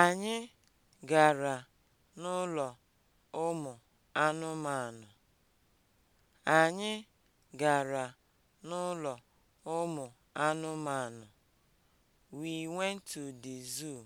Anyị gara n'ụlọ ụmụ anụmanụ. Anyị gara n'ụlọ ụmụ anụmanụ. We went to the zoo.